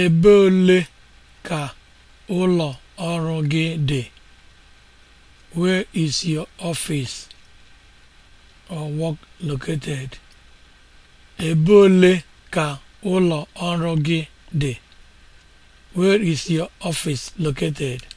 Ebe ole ka ụlọ ọrụ gị dị? Where is your office or work located? Ebe ole ka ụlọ ọrụ gị dị? Where is your office located?